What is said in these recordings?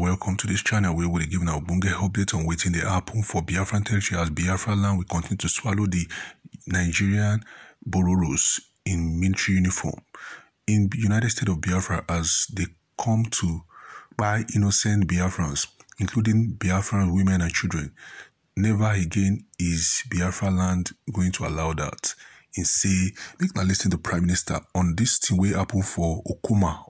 welcome to this channel where we'll be giving our bunge updates on waiting the happen for Biafran territory as Biafra land will continue to swallow the Nigerian Bororos in military uniform. In United States of Biafra, as they come to buy innocent Biafrans, including Biafran women and children, never again is Biafra land going to allow that. and say, make na listen to Prime Minister on this thing will happen for Okuma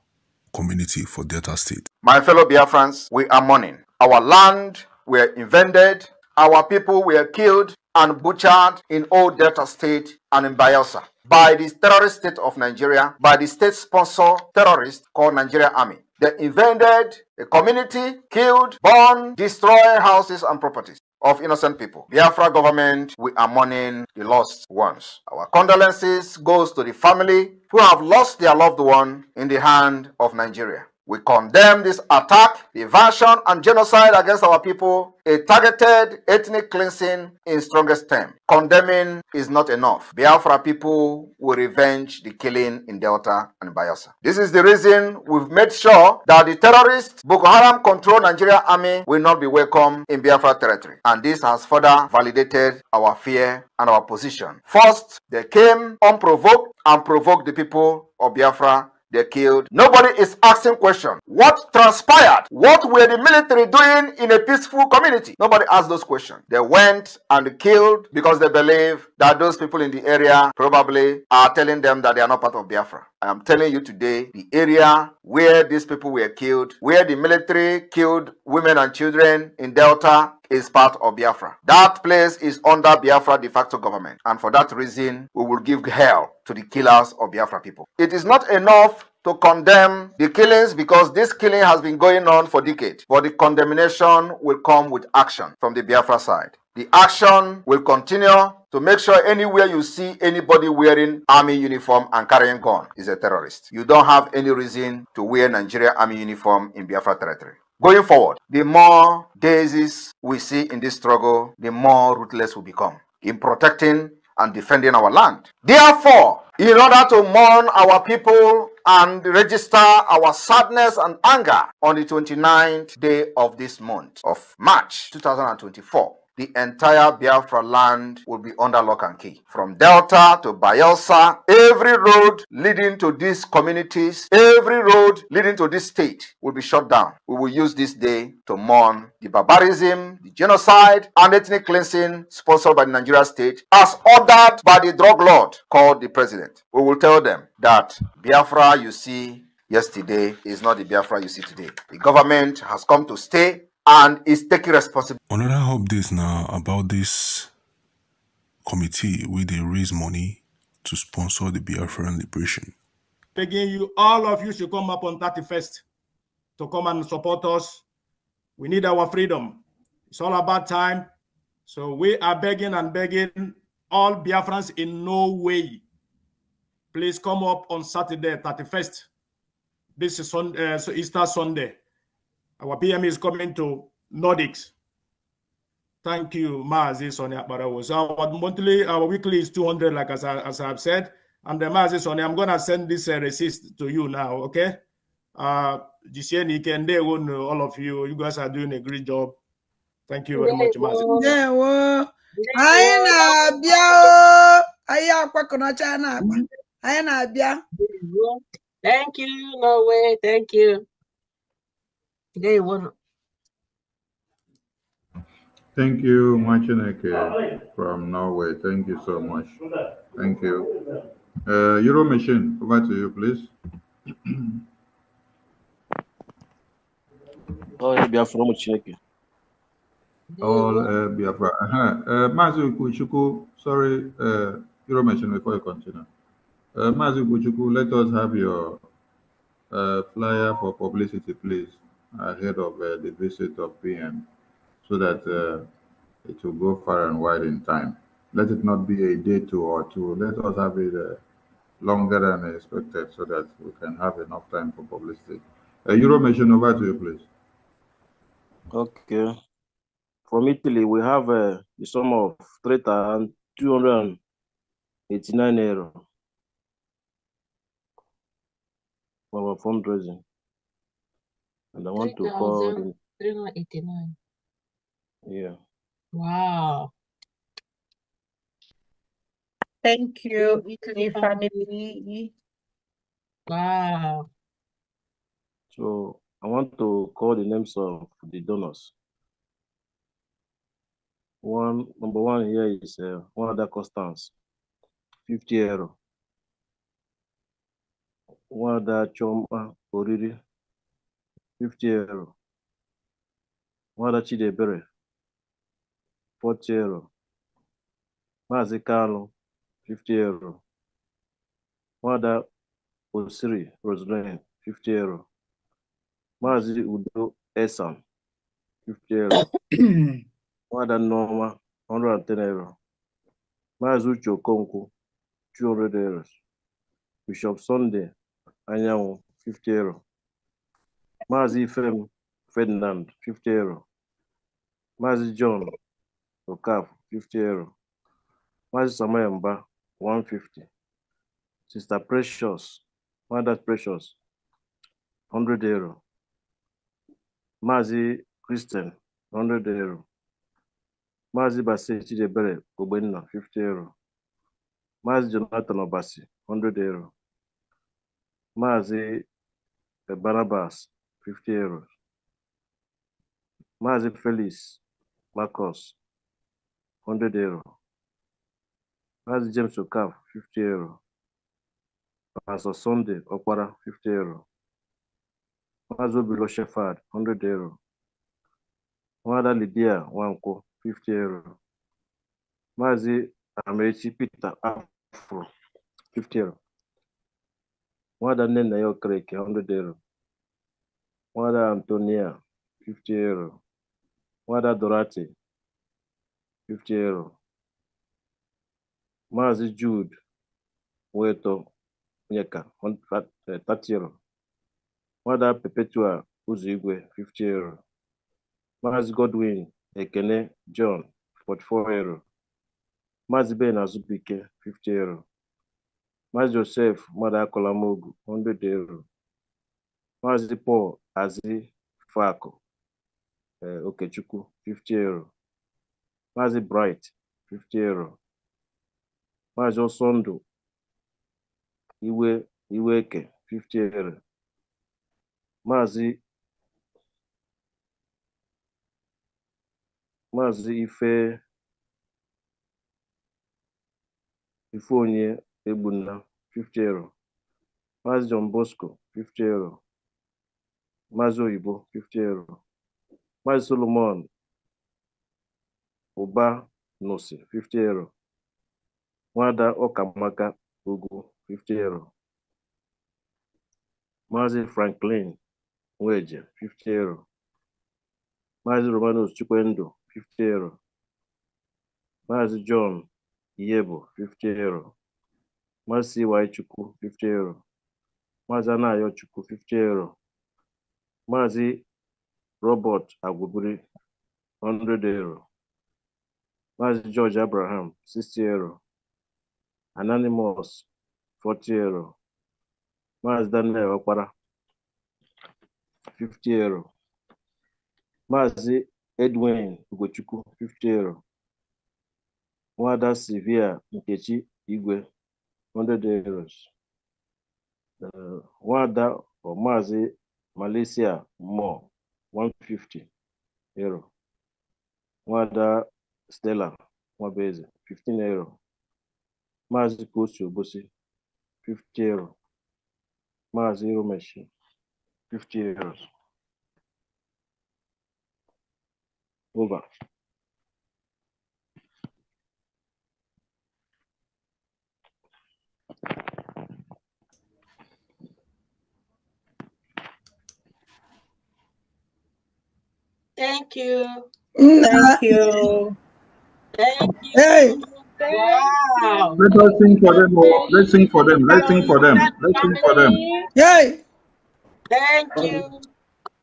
community for Delta State. My fellow Biafrans, we are mourning. Our land were invaded, our people were killed and butchered in old Delta State and in Bielsa by the terrorist state of Nigeria, by the state sponsor terrorist called Nigeria Army. They invaded a community, killed, burned, destroy houses and properties of innocent people. Biafra government, we are mourning the lost ones. Our condolences goes to the family who have lost their loved one in the hand of Nigeria. We condemn this attack, invasion, and genocide against our people, a targeted ethnic cleansing in strongest terms. Condemning is not enough. Biafra people will revenge the killing in Delta and Bayelsa. This is the reason we've made sure that the terrorists Boko Haram controlled Nigeria army will not be welcome in Biafra territory. And this has further validated our fear and our position. First, they came unprovoked and provoked the people of Biafra they killed. Nobody is asking questions. What transpired? What were the military doing in a peaceful community? Nobody asked those questions. They went and killed because they believe that those people in the area probably are telling them that they are not part of Biafra. I am telling you today, the area where these people were killed, where the military killed women and children in Delta, is part of Biafra. That place is under Biafra de facto government. And for that reason, we will give hell to the killers of Biafra people. It is not enough to condemn the killings because this killing has been going on for decades. But the condemnation will come with action from the Biafra side. The action will continue to make sure anywhere you see anybody wearing army uniform and carrying gun is a terrorist. You don't have any reason to wear Nigeria army uniform in Biafra territory. Going forward, the more daisies we see in this struggle, the more ruthless we become in protecting and defending our land. Therefore, in order to mourn our people and register our sadness and anger on the 29th day of this month of March 2024, the entire Biafra land will be under lock and key. From Delta to Bayelsa, every road leading to these communities, every road leading to this state will be shut down. We will use this day to mourn the barbarism, the genocide, and ethnic cleansing sponsored by the Nigeria state as ordered by the drug lord called the president. We will tell them that Biafra you see yesterday is not the Biafra you see today. The government has come to stay and is taking responsibility. Another update now about this committee where they raise money to sponsor the Biafran liberation. Begging you, all of you should come up on 31st to come and support us. We need our freedom. It's all about time. So we are begging and begging all Biafrans in no way. Please come up on Saturday, 31st. This is Sunday, uh, so Easter Sunday. Our PM is coming to Nordics. Thank you, Mazi Sonia Barawo. So our monthly, our weekly is 200, like as, I, as I've said. And the Mazi Sonia, I'm going to send this uh, receipt to you now, okay? Uh, day when all of you, you guys are doing a great job. Thank you very much, Mazi. Yeah, well, I am a anyị akwakọna thank you Norway thank you yeah, it Thank you, Machineke ah, from Norway. Thank you so much. Thank you. Uh, Euro machine, over to you, please. All uh, Biafra Machineke. All uh, Biafra. Uh-huh. Uh, Mazu Kuchuku, sorry, uh, Euro machine before you continue. Uh, Mazu Kuchuku, let us have your uh, flyer for publicity, please ahead of uh, the visit of PM so that uh, it will go far and wide in time. Let it not be a day two or two. Let us have it uh, longer than expected so that we can have enough time for publicity. Uh, Euromission, over to you, please. Okay. From Italy, we have uh, the sum of 3,289 euro for our fundraising. And I want to call 389. Yeah. Wow. Thank you, Italy family. Wow. So I want to call the names of the donors. One number one here is uh, one the Constance, 50 euro. One other Choma Oriri, 50 euro nwada Chidiebere 40 euro Maazị kalu 50 euro nwada Osiri Roseline 50 euro Maazị Udo Esan 50 euro nwada and 110 euro Maazị Uche Okonkwo 200 euro Bishop Sunday Anyanwụ 50 euro Mazi Fem Ferdinand, 50 euro. Mazi John Okaf, 50 euro. Mazi Samayamba, 150. Sister Precious, Mother Precious, 100 euro. Mazi Christian, 100 euro. Mazi Basi Chidebere, Kobenina 50 euro. Mazi Jonathan Obasi, 100 euro. Mazi eh, Barabas. 50 euros Maazị Felix Marcus 100 euros Maazị James Okaf 50 euros Pastor Sunday Okpara 50 euros Maazị Obilo Shefard 100 euros Nwada Lidia Nwankwọ 50 euros Maazị Amaechi Peter Afro 50 euros Nwada Nnenna ya Okereke 100 euros Nwada Antonia, 50 euro. Nwada Dorati 50 euro. Maazị Jude Weto Onyeka, 30 euro. Nwada Perpetua Ụzọigwe, 50 euro. Maazị Godwin Ekene John, 44 euro. Maazị Ben Azubike, 50 euro. Maazị Josef Mmadụ Akọlamogu, 100 euro. Maazị Paul Azịfakụ eh, Okechukwu, 50 euro, Maazị Bright, 50 euro, Maazị iwe Iweke, 50 euro, Maazị Maazị Ife Ifeonye egbunna 50 euro, Maazị John Bosco, 50 euro Maazị Oyibo 50 euro Maazị Solomon Ụba Nụsị 50 euro Nwada Ọkamaka Ogu 50 euro Maazị Franklin Nweje 50 euro Maazị Romanus Chukwendụ 50 euro Maazị John Iyebo 50 euro Maazị CY Chukwu 50 euro Maazị Anayo Chukwu 50 euro Maazị Robert Agwubiri 100 euro, Maazị George Abraham 60 euro, Anonymous 40 euro, Maazị Daniel Okpara 50 euro, Maazị Edwin Ugochukwu 50 euro, Nwada Sylvia Nkechi Igwe 100 euros, uh, Nwada ọ Maazị Malaysia more 150 euro. Wada Stella base? 15 euro. goes to Obosi 50 euro. zero machine. 50 euros. Over. Thank you. Thank you. Hey. Wow. Let us sing for them. Oh. Let's sing for them. Let's sing for them. Let's sing for them. Yay. Thank you.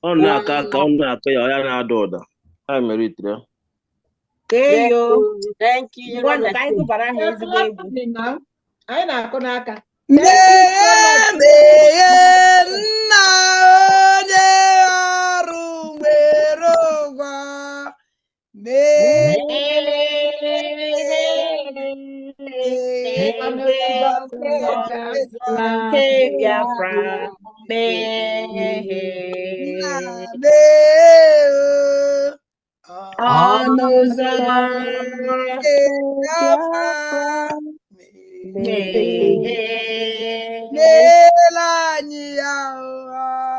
Oh na-aka aka ka o na-aka ya ọya na-ada Thank you. meritere deyo anyị gụbara ha ezigbo egwu anyị na ka. n'aka Mela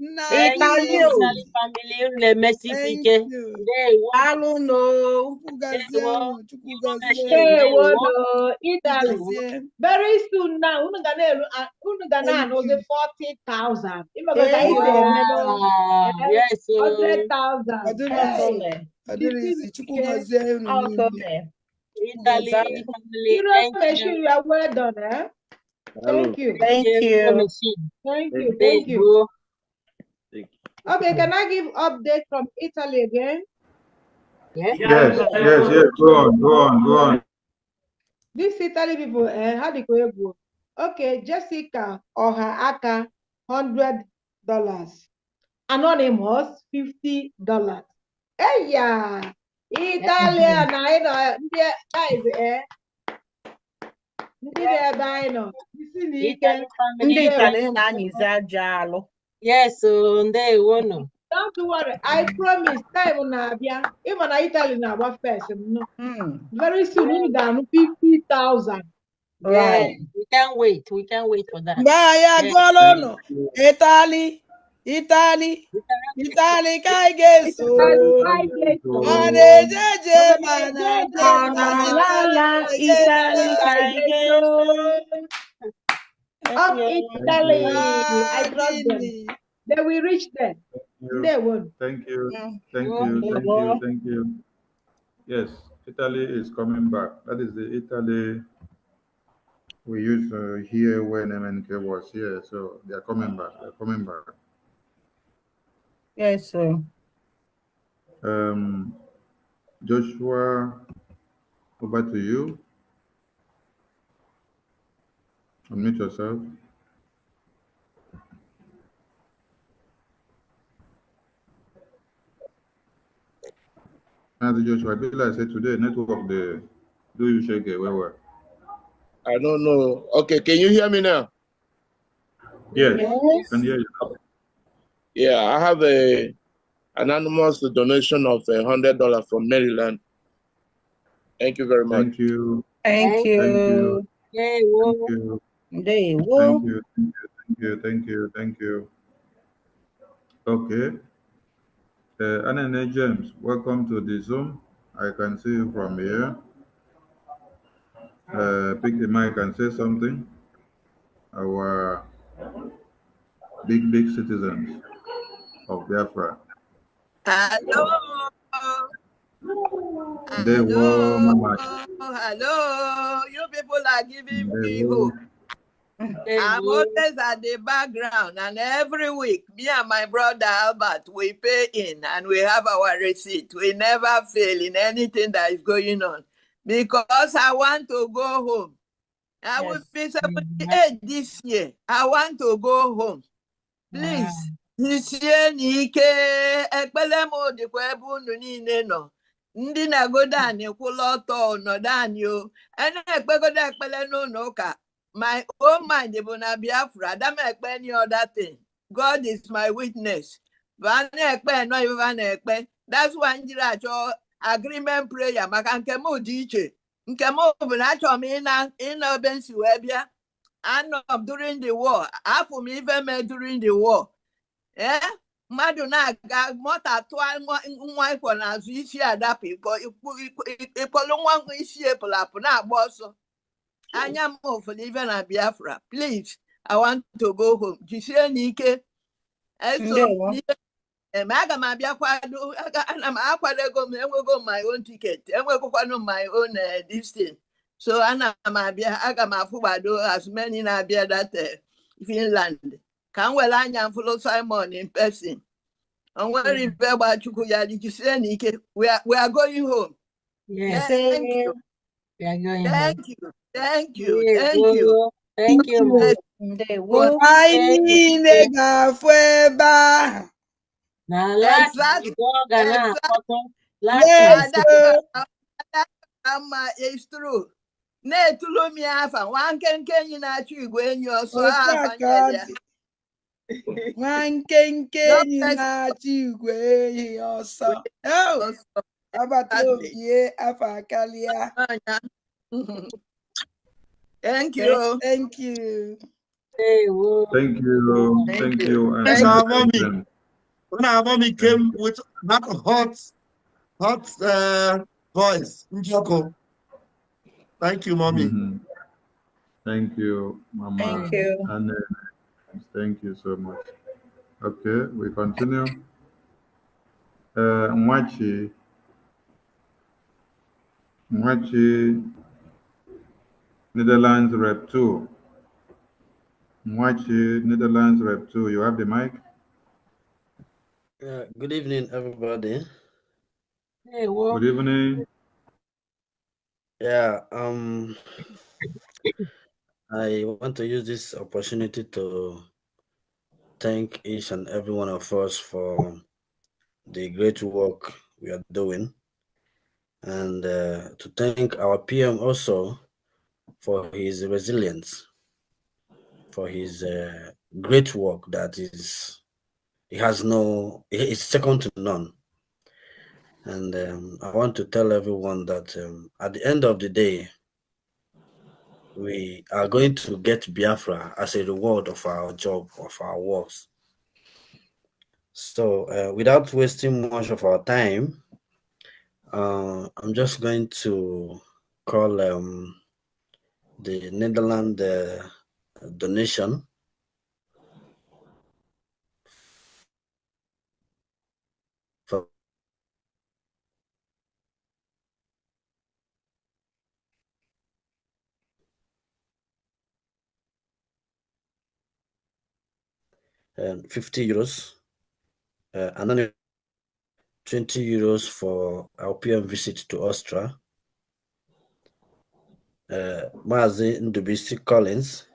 Italy, family, uh, Italy. Very soon now, uh, thousand. Yes. Oh. Hundred thousand. you Thank you. Thank you. Thank you. Thank you. Okay, can I give update from Italy again? Yeah. Yes, yes, yes. Go on, go on, go on. This Italy people, eh, eh Okay, Jessica or aka, $100 dollars. Anonymous, 50 dollars. Hey, Italia na anyị ndị guys e, eh? ndị dị ebe anyị nọ isi ndị Italy e- na-anyịzi aja Yes, day one. do Don't worry, I promise time na-abịa, ịma na Italy now, agba first no. Very soon We ga-anụ 50,000. Right. We can not wait, we can not wait for that. Ba ya gụọla Italy, Italy, Italy Italy of Italy. Ah, I trust really. them. They will reach there. They will. Thank you. Thank you. Thank you. Thank you. Yes, Italy is coming back. That is the Italy we used to here when MNK was here. So they are coming back. They're coming back. Yes, sir. Um, Joshua, over to you. Unmute yourself. And Joshua, like I said today, network the do you shake it where were? I don't know. Okay, can you hear me now? Yes, yes. can hear you. Yeah, I have a anonymous donation of a hundred dollar from Maryland. Thank you very much. Thank you. Thank you. Thank you. Thank you. They will. Thank you, thank you, thank you, thank you. Okay. Uh, Anene James, welcome to the Zoom. I can see you from here. Uh, pick the mic and say something. Our big, big citizens of Biafra. Hello. Hello. Hello. You people are giving me hope. I'm always at the background, and every week, me and my brother Albert, we pay in and we have our receipt. We never fail in anything that is going on because I want to go home. I yes. will be 78 mm-hmm. this year. I want to go home. Please, isie na ike ekpere m dịkwa ebe unu niile nọ ndị na-egodo anyị kwụla ọtọ nọdụ anyị o a na-ekpegodo ekpere n'ụlọ ụka my own mind bụ na Biafra adam ekpe any other thing God is my witness va ekpe nọ iva na-ekpe that's why njiri achọ agreement prayer maka nke m dị iche nke m bụ na achọ m ịna obe nsi wee bịa anọ during the war afụ m ife me during the war ee mmadụ na-aga mọta tụọ nwa ịkwọ n'azụ isi adapụ ikpolu nwa isi epụlapụ na-agba ọsọ anya m ofelive na biafra plis i want to go home jisie n'ike eme aga m abịa kwado ana m akwado ego m enwego my own ticket enwegokwanụ my own distance eh, so ana m abịa aga m afụgbado as na-abịa that eh, finland ka m were anya m simon in person onwere hmm. ibe gba chukwu ya jisie n'ike we are going home thank you Thank you, thank you. Thank you. Na láti ìgbọ́ Ghana àkọ́tọ́ láti àṣẹ. Ama it's true. Na-etulu m ya afa, nwa nkenke enyi na-achụ igwe enyi ọsọ afanyere ya. Nwa nkenke enyi na-achụ igwe enyi ọsọ. Agbata obi afa karịa. Thank you. Thank you. Thank you. Thank you. Thank you, our mommy, when our mommy came with that hot, hot uh, voice, Njoko. Thank you, mommy. Mm -hmm. Thank you, mama. Thank you. And, uh, thank you so much. Okay, we continue. Uh, Mwachi. Mwachi Netherlands Rep 2. Mwachi, Netherlands Rep 2, you have the mic? Uh, good evening, everybody. Hey, well, good evening. Yeah, um, I want to use this opportunity to thank each and every one of us for the great work we are doing and uh, to thank our PM also for his resilience, for his uh, great work that is, he has no, is second to none. And um, I want to tell everyone that um, at the end of the day, we are going to get Biafra as a reward of our job, of our works. So, uh, without wasting much of our time, uh, I'm just going to call um, the Netherlands uh, donation and 50 euros uh, and then 20 euros for our PM visit to Austria uh, Mazi Ndubisi Collins,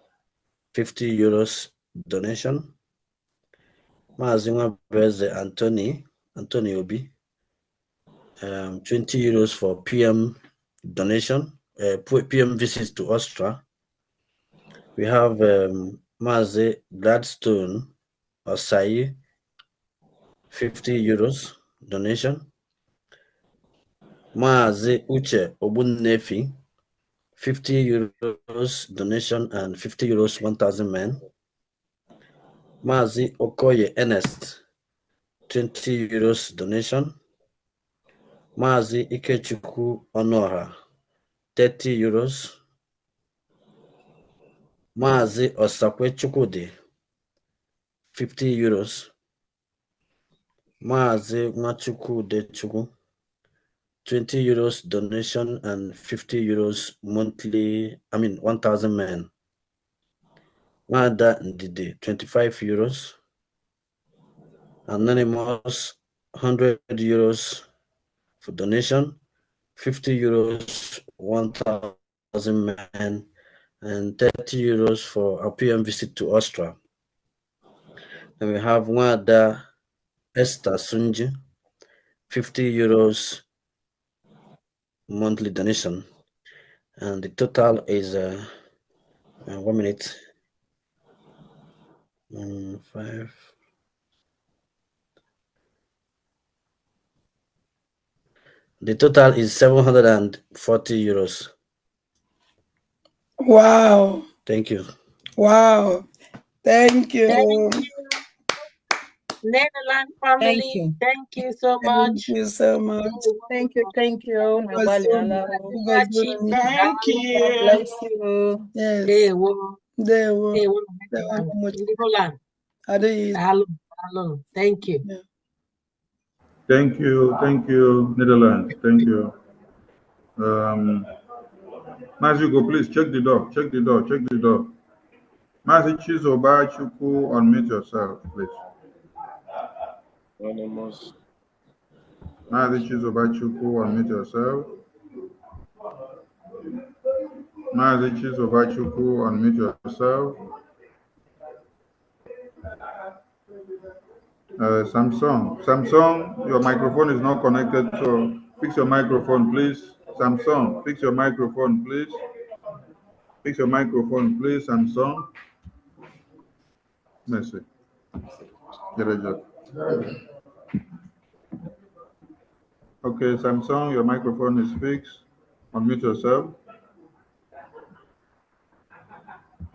50 euros donation. Mazi Nwabeze Anthony, Anthony Obi, um, 20 euros for PM donation, uh, PM visits to Austria. We have um, Mazi Gladstone Osai, 50 euros donation. Mazi Uche Obunnefi, 50 euros donation and 50 euros 1,000 men. Mazi Okoye Ernest, 20 euros donation. Mazi Ikechukwu Onora, 30 euros. Mazi Osakwe Chukwudi, 50 euros. Mazi Nwachukwu Dechukwu, 20 euros donation and 50 euros monthly, I mean, 1,000 men. Mada Ndidi, 25 euros. Anonymous, 100 euros for donation, 50 euros, 1,000 men, and 30 euros for a PM visit to Austria. And we have Wada Esther Sunji, 50 euros monthly donation and the total is uh, uh, one minute um, five the total is 740 euros wow thank you wow thank you, thank you. Netherlands family. Thank you. Thank you so much. Thank you so much. Thank you. Thank you. Thank you. Thank you. Thank Yes. They will. They will. They will. Thank you. Thank you. Thank you, Netherlands. Thank you. Um, Mazuko, please check the door. Check the door. Check the door. Master Chizoba Chuku, unmute yourself, please. Anonymous. Maazị Chizobachukwu, unmute yourself. Maazị Chizobachukwu, unmute yourself. Uh, Samsung, Samsung, your microphone is not connected, so fix your microphone, please. Samsung, fix your microphone, please. Fix your microphone, please, Samsung. Merci. Direct. Okay, Samsung, your microphone is fixed. Unmute yourself.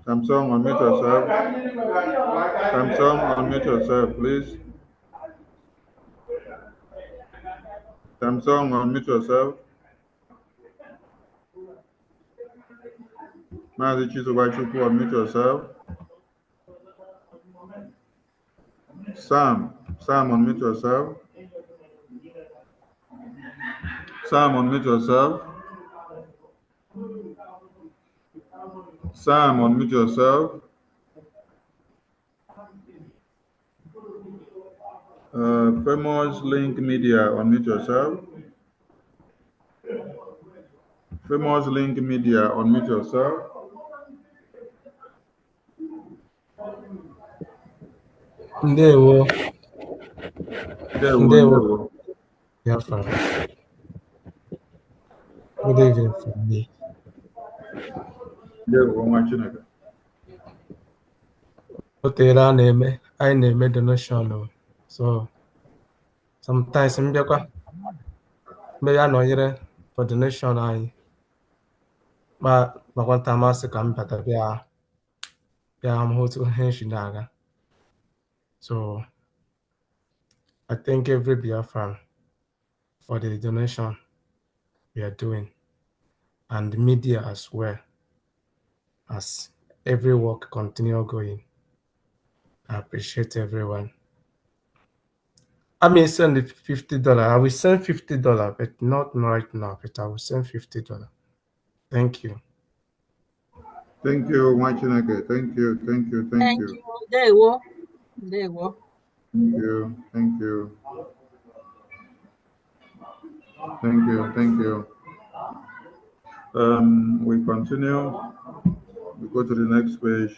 Samsung, unmute yourself. Samsung, unmute yourself, please. Samsung, unmute yourself. Mazi Chizubachukwu, unmute yourself. Sam, Sam, unmute yourself. Simon, mute yourself. Simon, mute yourself. Uh, famous Link Media, unmute yourself. Famous Link Media, unmute yourself. There, There we go. Yeah, fine poder ver para mim. otere so sometimes m bịakwa mgbe ya nọnyere for donation anyị but nakwa nta masị ka m bata bịa bịa hụ otu ihe nshi na so I thank every Biafran for the donation we are doing and media as well as every work continue going. I appreciate everyone. I may send the fifty dollar. I will send fifty dollar, but not right now. But I will send fifty dollar. Thank you. Thank you, Machinake. Thank you. Thank you. Thank, thank you. you. There you go. There you go. Thank you. Thank you. Thank you. Thank you. Um, we continue. We go to the next page.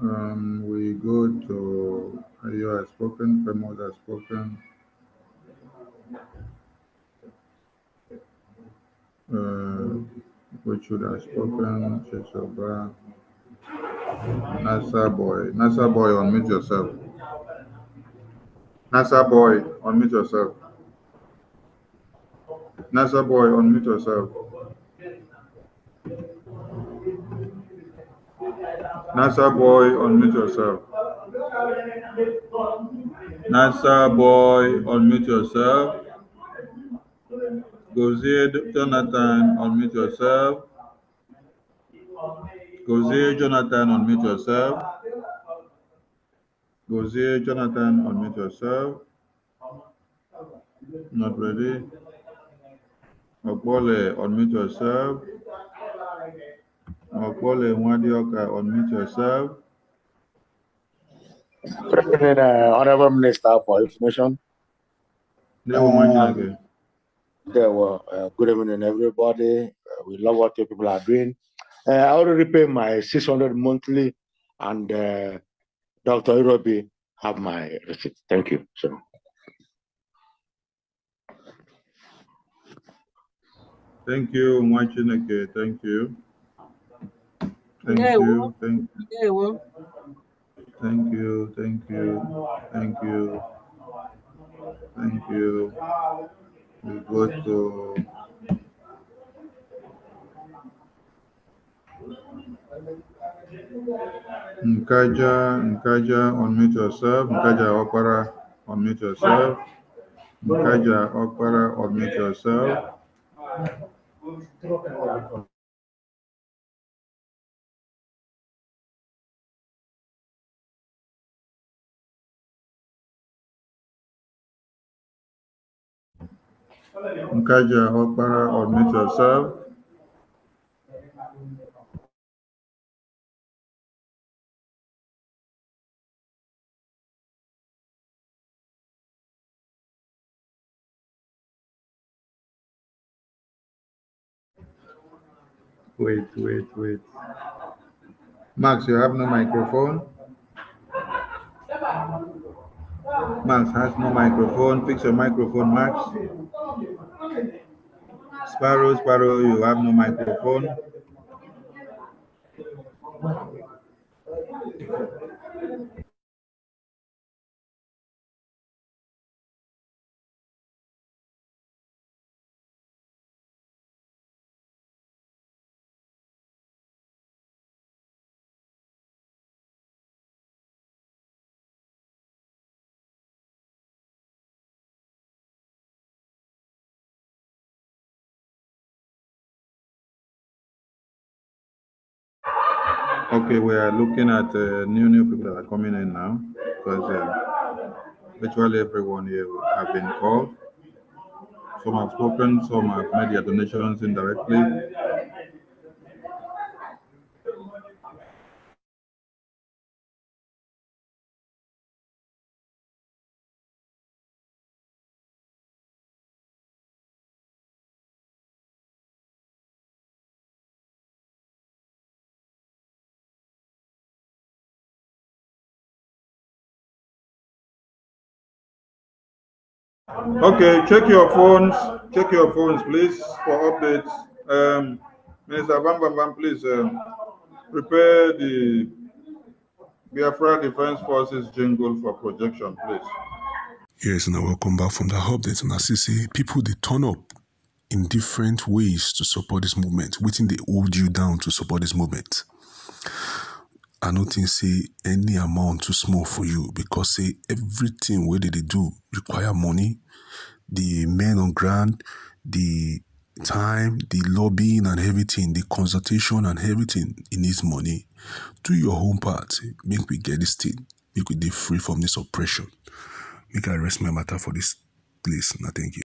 Um, we go to you have spoken, Premod has spoken. Uh, Richard has spoken, Chesoba. Nasa boy. Nasa boy, unmute yourself. Nasa boy, unmute yourself. Nasa boy, unmute yourself. Nasa boy, unmute yourself. Nasa boy, unmute yourself. Gozier Jonathan, unmute yourself. Gozier Jonathan, unmute yourself. Gozier Jonathan, unmute yourself. Not ready. Okwole, unmute yourself. Okwole Mwadioka, unmute yourself. President, uh, Honorable Minister for Information. Um, there were uh, good evening, everybody. Uh, we love what your people are doing. Uh, I already pay my 600 monthly, and uh, Dr. Irobi have my receipt. Thank you. So. Thank you, Mwachineke. Thank you. Thank you. Thank you. Thank you. Thank you. Thank you. Thank you. We go to Nkaja, Nkaja, unmute yourself. Nkaja Okpara, unmute yourself. Nkaja Okpara, unmute yourself. Nkaja Okpara, unmute yourself. Wait, wait, wait. Max, you have no microphone? Max has no microphone. Fix your microphone, Max. Sparrow, Sparrow, you have no microphone. Okay, we are looking at uh, new new people that are coming in now because uh, virtually everyone here have been called. Some have spoken, some have made their donations indirectly. Okay, check your phones. Check your phones, please, for updates. Um, Minister Bam Bam Bam, please um, prepare the Biafra Defense Forces jingle for projection, please. Yes, and I welcome back from the update. That's as people, they turn up in different ways to support this movement, waiting they hold you down to support this movement. I don't think say any amount too small for you because say everything where they, they do require money, the men on ground, the time, the lobbying and everything, the consultation and everything, it needs money. Do your home part. Make we get this thing. Make we be free from this oppression. Make I rest my matter for this place. Now, thank you.